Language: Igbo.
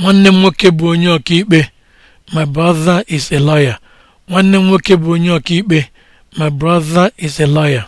nwanne m nwoke bụ onye ọkaikpe my is a my brother is a lawyer